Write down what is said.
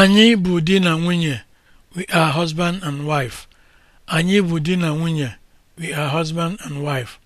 Anyị bụ di na nwunye. We are husband and wife. Anyị bụ di na nwunye. We are husband and wife.